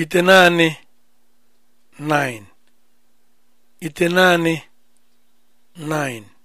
ite naanị 9 9